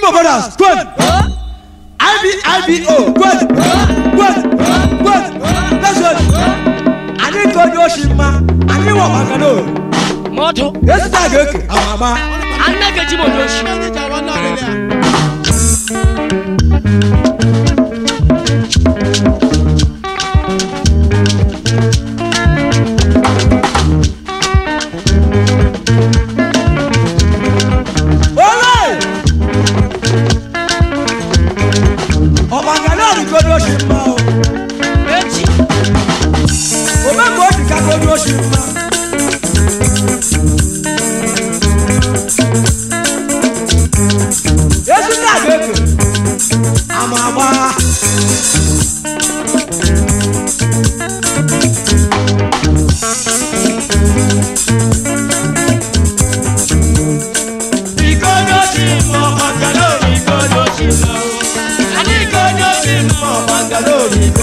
Igbo brothers, good. IBIBO, good. Good. Good. That's good. Anyị tụọ onye oshi mma, anyị wọ maka na o. Mọdụ. Esi taa ga-eke, ama ama. Anageji m onye oshi. worship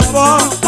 your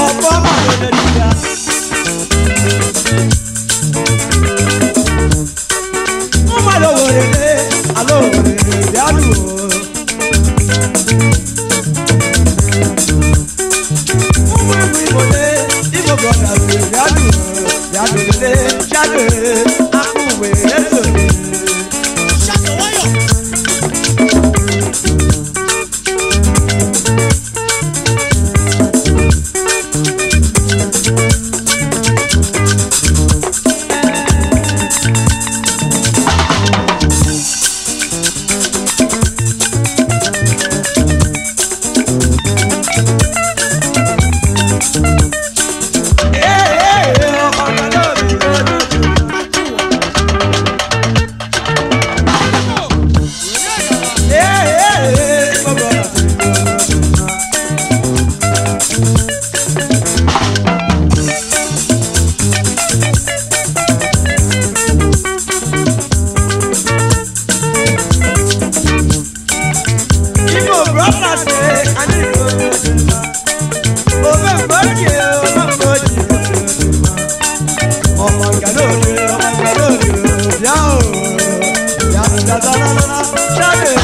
bịa o bịa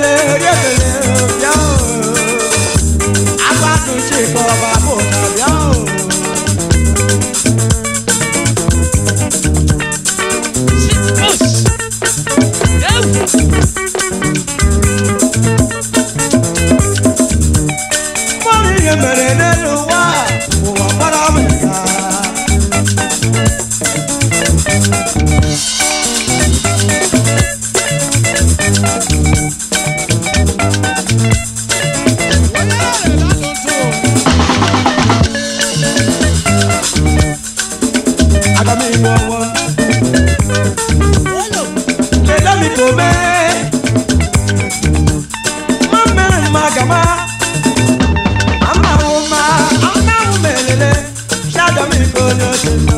Hallelujah. Listen.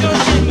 Yo, yo, yo.